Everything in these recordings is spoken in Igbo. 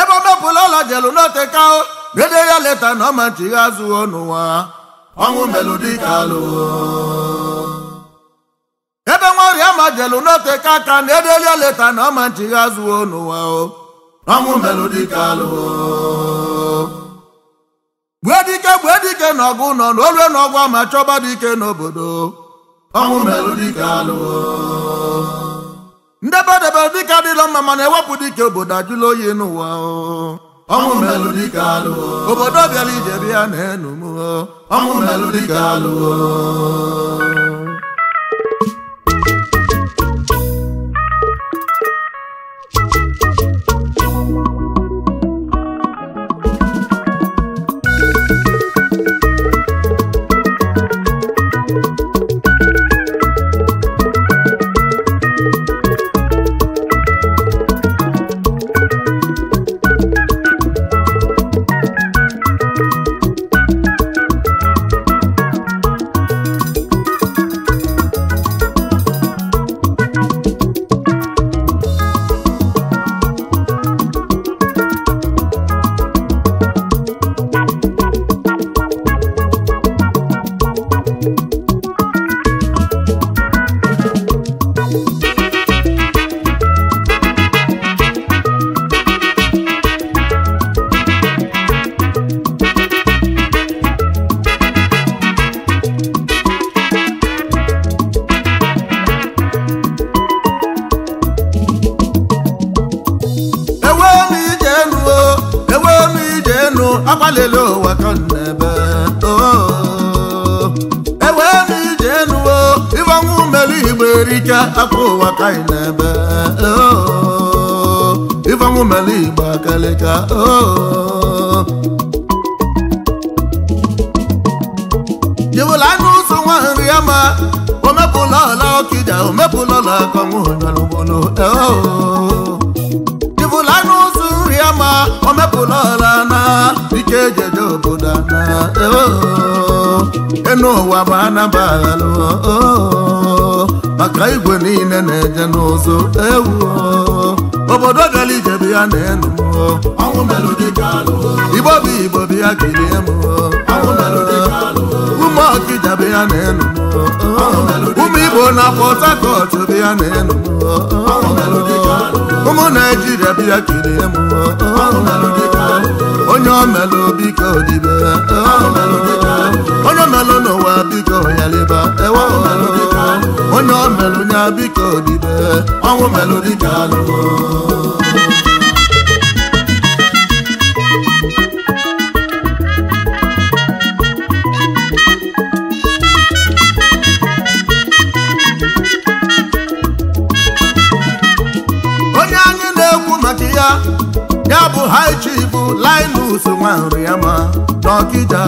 ebe ọ dọpụla ọla jelu n'otekaụ dede ya leta na ọmachighi azụwo n'ụwa ọnwụ melụ dịka alụ ebe nwa ọrịa ma jelu n'oteka ka na ede ya leta na ọmachighi azụwo n'ụwa ọnwụ melụ dịka alụ gbue dike gbue dike na ọgụ nọ n'olue n'ọgwụ ma chọba dike n'obodo ọnwụ melụ dịka alụ Ndebe ndebedebe dike adịla mma mana ewepụ dike obodo ajụla oyi n'ụwa ọnwụ melụ dike alụwo obodo bịara ije bịa na enu m ọnwụ melụ dike alụwo enu akpalele ụwa ka ebe ewe ebe ije enu ịgbanwe umelu igbo erike aka ụwa ka anyị na-ebe ịgbanwe umelu igbo akalịka jewela anụ ụzọ nwa nri ama omepụla ọla ọkịja omepụla ọla akọnwụ onyalugbolo jewela anụ ụzọ nri ama omepụla dike jeje obodo ana oh, oh. enu ụwa ma a nabalụ oh, maka igwe niile na-eje n'ụzọ ewu obodo gara ije bụ ya na enu igbo bụ igbo bụ ya kirie m ụmụ ọkịja bụ ya na enu ụmụ igbo na pọt hakọt bụ ya na enu ụmụ naijiria bụ ya kirie m onye melụ biko dibe onye melụ n'ụwa biko onye nya biko dibe ọnwụ melụ dịka alụgo onye na maka ya ya bụ haiji bụ Linus Nwanriama n'Ọkịja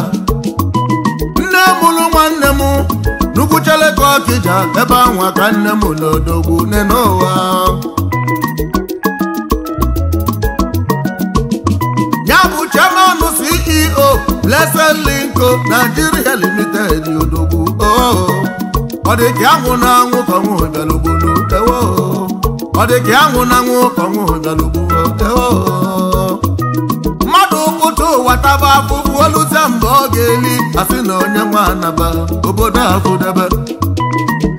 nne mụrụ nwanne m n'Ugwucheleke Ọkịja ebe ahụ ka nne m n'odogwu nne n'ụwa ya bụ chairman CEO Blessed Linko Nigeria Limited odogwu ọ dị ka anwụ na anwụ ka nwa bịalugbo ọ dị ka anwụ na anwụ ka nwa bịalugbo oluta mgbe ọ ga-eli asị na onye nwa anaba obodo akụdebe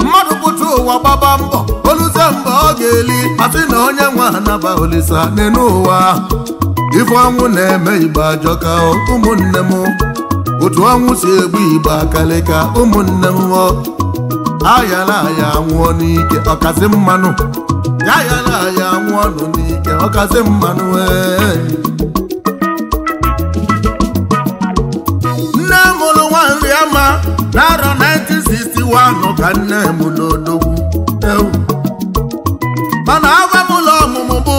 mmadụ pụta ụwa gbaba mbọ oluta mgbe ọ ga-eli asị na onye nwa anaba olisa n'enu ụwa ife ọnwụ na-eme igbe ajọka ụmụnne m otu ọnwụ si egbu igbe ka ụmụnne m ayala aya nwụọ n'ike ọkazi mmanụ ayala aya anwụọ nụ n'ike ọkazi mmanụ ee n'arọ 1961 ka nne m n'odogwu ewu mana agwa m ụlọ ọmụmụ bụ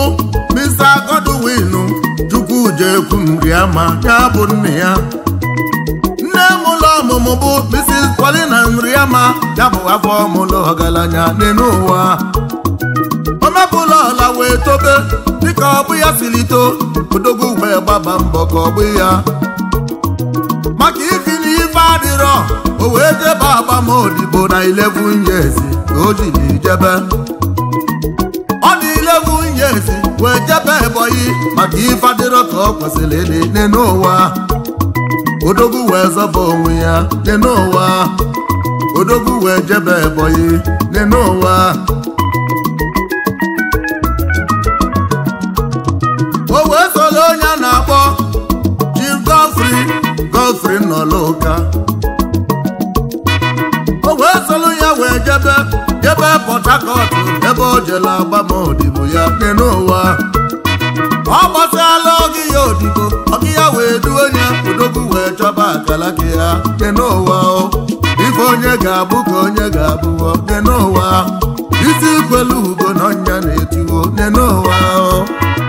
Mr. Godwinu Chukwujekwu Nriama ya bụ nne ya nne m ụlọ ọmụmụ bụ Mrs. Paulina nri ya bụ afọ ọmụlụ ọgaranya n'elu ụwa omebụlọ ọla wee tobe dịka ọ bụ ya siri odogwu wee gbaba mbọ ka ọ bụ ya iro o wee jebe agbamodibo na nye ezi years o jiri jebe ọ na nye ezi wee jebe ebonyi maka ife adịrọ ka ọ kwesịrị ịdị n'ụwa odogwu wee zọba onwe ya dị n'ụwa odogwu wee jebe ebonyi dị n'ụwa o wee soro onye a na-akpọ Chief Godfrey Godfrey nọlụka Port Harcourt ebe o jela agbamodibo ya dị n'ụwa ọ gbasala oge ya odibo oge ya wee duo onye odogwu wee chọba akalaka ya dị n'ụwa ife onye ga-abụ ka onye ga-abụwo dị n'ụwa isi kwelu ugo na ọnya na etiwo dị n'ụwa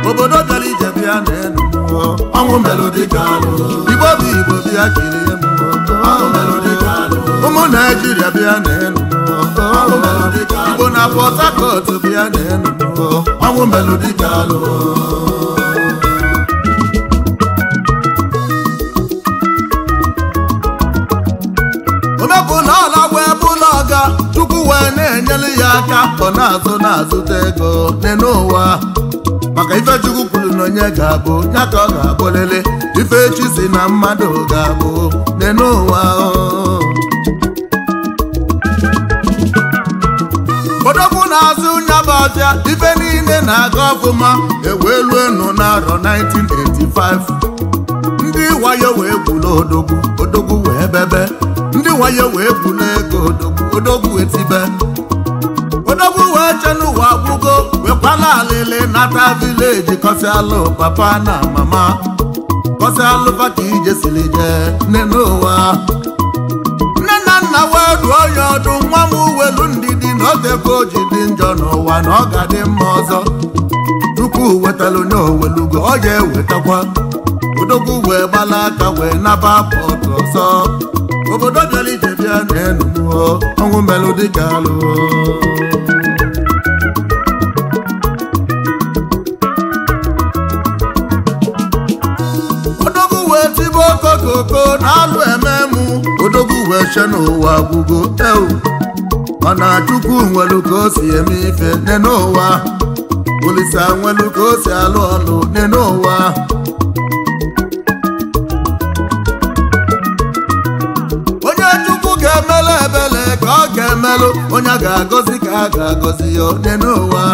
obodo gara ije bịa na elu mmụọ ọnwụ melụ dịka alụ igbo bụ igbo bịa kiri mmụọ ụmụ naijiria bịa na elu na Port Harcourt bịa na Enugu ọnwụ Melody Daalụ omepụ na ọlagwụ ebe ụlọ ọga Chukwu wee na-enyelu ya aka ọ na-azụ na-azụta ego n'enu maka ifechukwu Chukwu kwuru na onye ga-abụ ya ka ọ ga-abụlele ife chi si na mmadụ ga-abụ n'enu n'azụ nyababịa ibe niile na-aga ọfụma ewee enu n'arọ 1985 ndị wayo wee gbula odogwu odogwu wee bebe ndị wayo wee gbula ego odogwu odogwu wee tibe odogwu wee che n'ụwa wekwala alịlị nata vileji kọsialụ papa na mama kọsialụ ka ije siri jee n'ụwa dụọ ya ọdụ nwa m uwelu ndidi na odebe oji dị njọ n'ụwa na ọ ga dị mma ọzọ tupu wetara onye owelugo ọ ya ewetakwa odogwu wee gbala aka wee naba pọtụ ọzọ obodo bịara ije bịa na enuo ọnwụ melụ dịka alụ odogwu wee tibe na alụ eche n'ụwa gwugo ewu mana chukwu nwelu ka o si eme ife nne n'ụwa olisa nwelu ka o si alụ ọlụ nne n'ụwa onye chukwu ga-emelụ ebele ka ọ ga-emelụ onye a ga-agọzi ka a ga-agọzi ya nne n'ụwa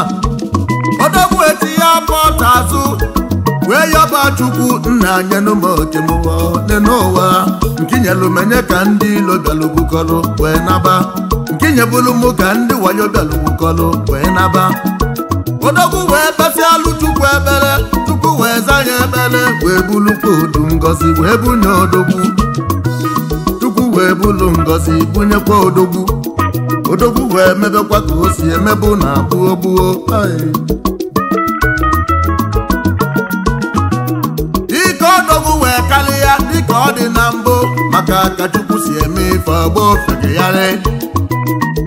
ya pọta azụ chukwu nna anyị n'ụmụotemụwa dị n'ụwa nkinyelụmenye ka ndị ilo bịalụbukọlụ wee naba nke nkinyebulu mụ ka ndị wayo bịalụbukọlụ wee naba odogwu wee basịalụ chukwu ebere chukwu wee za ya ebere wee bulukwa odu ngozi wee bunye odogwu chukwu wee bulu ngozi bunyekwa odogwu odogwu wee mebekwa ka o si emebu na gbuo gbuo ka ka Chukwu si eme ife ọgbọ re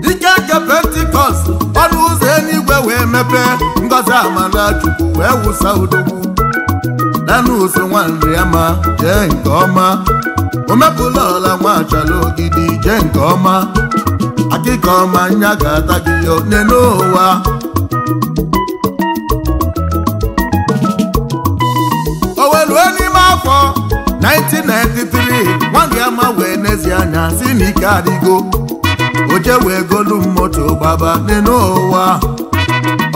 dike nke pentikọst ọnụ ụzọ eluigwe wee mepe ngọzi amala Chukwu wee wụsa udogbu danụ ụzọ nwanri ama jee nke ọma omepụla ọla nwachala ogidi jee nke ọma akịka ọma nya ga-ata gị onye n'ụwa mma wee n'ezie anya si na ike adịgo oje wee golu moto gbaba n'ụwa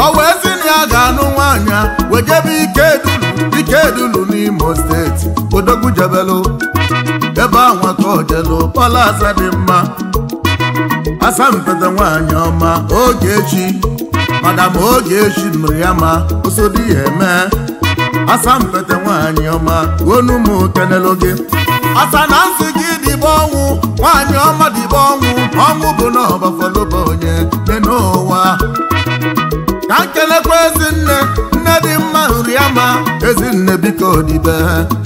ọ wee si na ya ga-anụ nwaanya wejebe ikedulu ikedulu n'imo steeti odogwujebelu ebe anwa ka ojelu palasa dị mma asampete nwaanyị ọma Ogechi madam Ogechi nụrụ ya ma osodi ya eme asampete nwaanyị ọma gonu m kenelu gị asa na nsị gị dịbe ọnwụ nwaanyị ọma dịbe ọnwụ ọnwụ bụ na ọbafaloba onye dị n'ụwa ka nkelekwa ezinne nne dị mma nri ama. ma ezinne biko dibe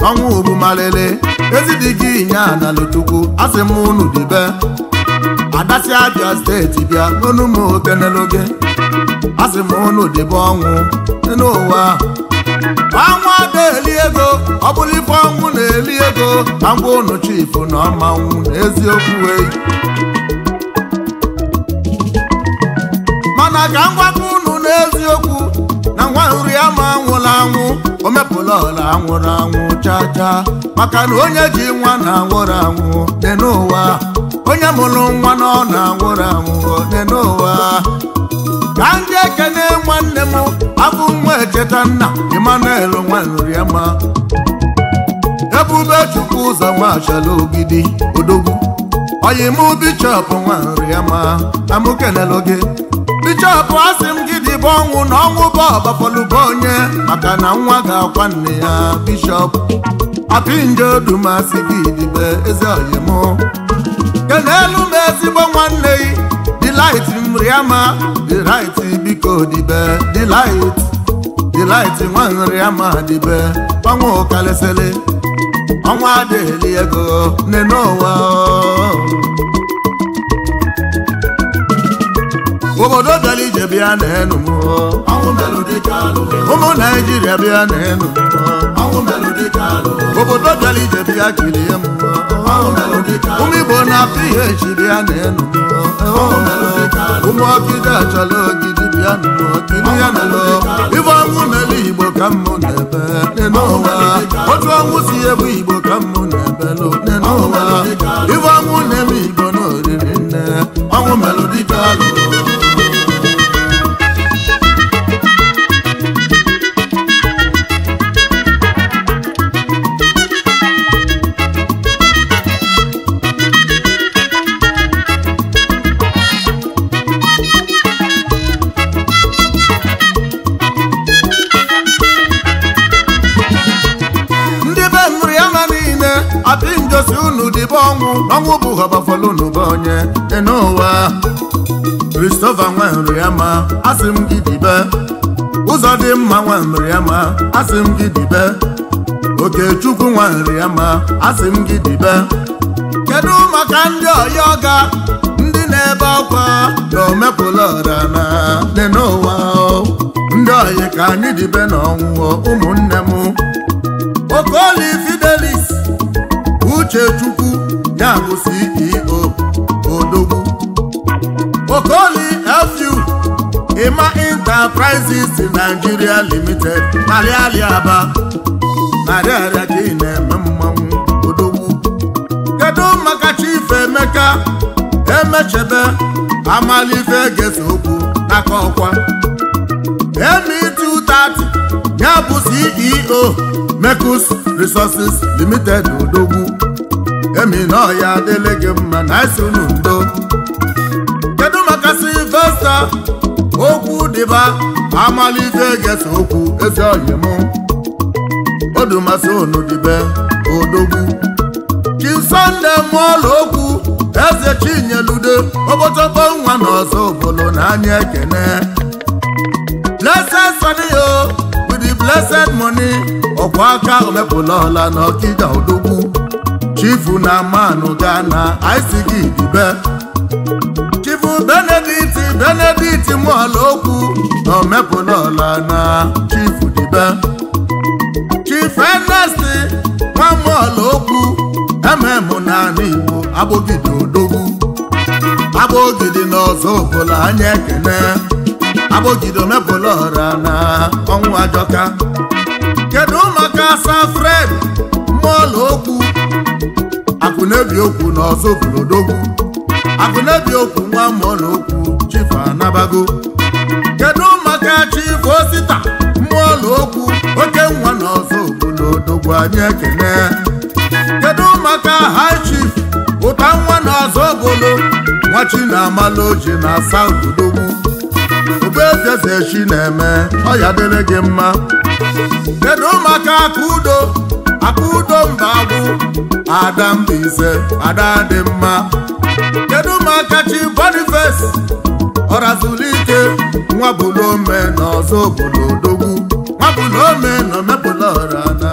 ọnwụ bụ Ezi dị gị nya na asị m unu dịbe adasi abịa steeti bịa n'onu m okeneloge asị m unu dịbe ọnwụ dị n'ụwa na-eli ego ọ bụrụ ife ọnwụ na-eli ego ka ngwa unu chifu na ọmanwụ n'eziokwu eyi mana ka ngwakọ ụnụ n'eziokwu na ngwa nri ama anwụla anwụ o mepụla ọla anwụrụ anwụ chaa chaa maka na onye ji nwa na anwụrụ anwụ dị n'ụwa onye mụrụ nwa na ọ na anwụrụ anwụ dị n'ụwa ka ndị ekene nwanne m abụ nwa echeta nna Emmanuel nwanrima ebube chukwu ụzọ nwachala ogidi odogwu oyimụ bichọp nwanrima amụkelelo gị bichọp asị m gị dịbe ọnwụ na ọnwụ bụ ọbafọlụba onye maka na nwa ga-akwa nne ya bishọp apinjedumasị gị dịbe eze oyimụ kenelu m ezigbo nwanne gị dịlaiti dị dịlaiti biko dibe delight delight nwa ama dibe ọnwa ego obodo bịa na enu ụmụ naijiria bịa na enu obodo dara bịa kirie m ụmụ igbo na bịa na enu ụmụ ya nụlọ ọnwụ igbo ka n'ụwa otu ọnwụ si ebu igbo ka mmụ na-ebelụ n'ụwa na-eme igbo nne dịbe ọnwụ ọnwụ bụ họbafọlụ n'ụba onye dị n'ụwa Christopher nwere ya ma asị m gị dibe ụzọ dị mma nwere ya ma asị m gị dibe Okechukwu nwere ya ma asị m gị dibe kedu maka ndị ọya ọga ndị na-ebe akwa na omepụla na dị n'ụwa ndị ọyị ka anyị dibe n'ọnwụ ụmụnne m Okoli Fidelis Uchechukwu bụ CEO Odogwu Okoli FU Ima Enterprises Nigeria Limited aliali Aba narị ka ị na-eme mmanwụ Odogwu kedu maka Chief Emeka Emechebe Amalife Gesa okwu n'aka ọkwa M230 ya bụ CEO Mekus Resources Limited Odogwu emina ọya adịlị gị mma na asị unu ndo kedu maka silvesta okwu dịba amalife gesa okwu eze mụ? odumasị unu dịbe odogwu chisonde mụọla okwu eze chinyelude obochọkọ nwa na ọzọ obolo na anya ekene blessed saniyo with the blessed money ọkwa aka omepụla ọla na ọkịda odogwu chifu na manụ na isigi dube chifu benedict benedict mụọla okwu na ọla na chifu dube chifu enest nwamụọla okwu ememụ naanị igbo abụgide odogwu abụgide na ọzọ ọbụla anya ekene abụgide ọra na ọnwụ ajọka kedu maka asa fred mụọla okwu na-ebi okwu na ọzọ na-ebi okwu nwa mmụọ na okwu chifu anabago kedu maka chifu osita mmụọ na oke nwa na ọzọ obolodogwu anyị ekene kedu maka high chief ụta nwa na ọzọ nwa na amala oji na asa obolodogwu obezezechi na-eme ọya dịrị gị mma kedu maka aka udo akaudo mbagwu ada adadị mma kedu makachi bonifes ọrazụlike nwabulome na ọzọ obodo odogwu nwabụlome na omepụla ọra na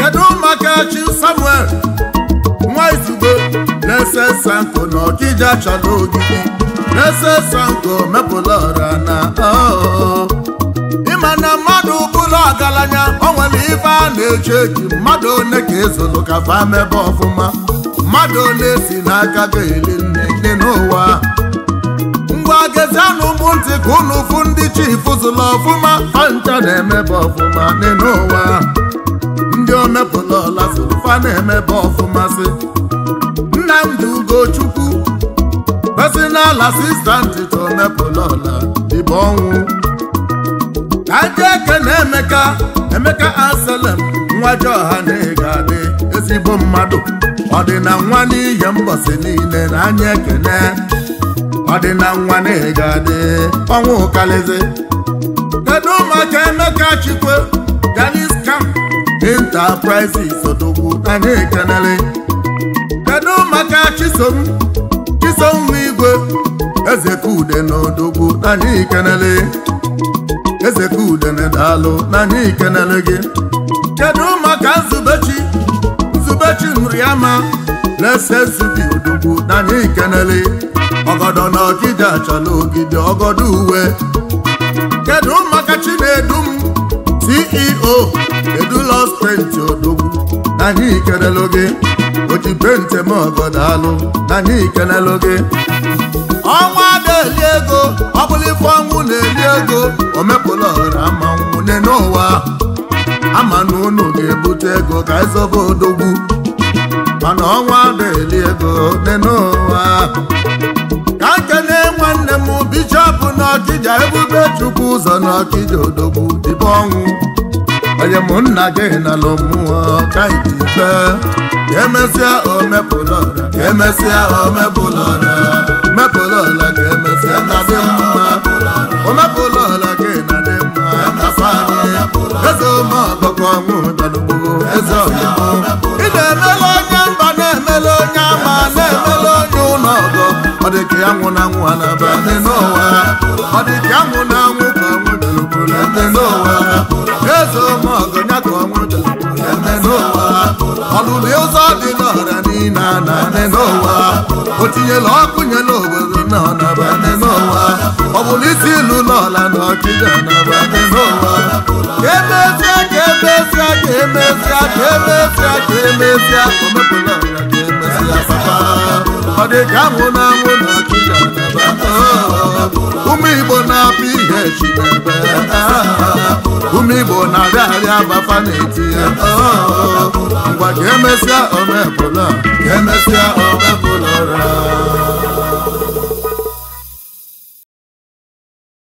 kedu makachi samuel nwa izugbe na-ese sanko na ọkija chọrọ ogidi na-ese sanko mepụla ọra na ịma na mma ọgaranya o nwere ife a na-eche echi mmadụ one ka ezolu ka fa ọfụma mmadụ one si n'aka ga-eli nne gị n'ụwa ngwa anụ ụmụ ntị ka unu fụ ndị chifu zụlụ ọfụma fancha na-emebe ọfụma n'ụwa ndị omepụla ọla zụrụ na-emebe ọfụma si Nnamdi Ugochukwu pesi n'ala ntị ka omepụla ọla dịbe ọnwụ ajọ eke na emeka emeka asalem nwa jọha na-ego adị ezigbo mmadụ ọdịna nwa n'ihe mbọsị niile na anya ekene ọdịna nwa na-ego adị ọnwa ụkalizi kedu ụmụaka emeka chikwe ganis kam enterprises odogwu anyị ekenere kedu ụmụaka chisom chisom igwe ezekude na odogwu anyị ikenere ezekudene daalụ n'anya ikenele gị kedu maka nzubechi nzubechi na-ese zubi odogwu n'anya ikenele ọgọdọ na ọgide achọla ogide ọgọdọ uwe kedu maka chinedum ceo kedu los penti odogwu n'anya ikenele gị oji penti m ọgọdọ alụ n'anya ikenele gị ọnwa na-eli ego ọ bụrụ ife ọnwụ na-eli ego omepụla ọra manwụ ne n'ụwa ama na unu ga-ebute ego ka ịzọba e odogwu mana ọnwa na-eli ego ne n'ụwa ka na-enwe nwanne m bishọp n'ọkịja ebube chukwu ụzọ n'ọkịja odogwu dịbe ọnwụ onye mụ nna gị nalụ mmụọ ka ikpe emesịa omepụ emesịa omepụla ọla mepụla ọla ka emesịa na-adị mma omepụla ọla ka ị na-adị mma eze ụmụọkpọkọ ọnwụ dadugbuo eze ọyịbụ ị na-emele onye mba na-emele onye ama na-emele onye ụlọ ọgọ ọ dị ka ya nwụ na nwụ ha na n'ụwa ọ dị ka ya nwụ na nwụ ka ọnwụ dalugburu ndị n'ụwa eze ụmụọgọ ya ka ọnwụ dalugburu ndị n'ụwa ọlụlụ ụzọ dị n'ọra niile na anị n'ụwa o tinyela ọkụ nye n'obodo na ọnaba anị n'ụwa ọ bụrụ isi ilu n'ọla na ọchịchị ọnaba anị n'ụwa emezia ka emezia ka emezia ka emezia ka emezia omepụla ọra ka emezia papa ọ dị ka anwụ na anwụ ụmụ igbo na apụ ihe chinebe ụmụ igbo na-abịa arịa abafa na-etinye ngwa ka emesịa omebụla ka emesịa omebụlọra